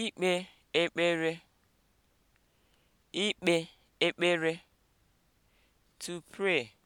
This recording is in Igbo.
ikpe ekpere ikpe ekpere to pray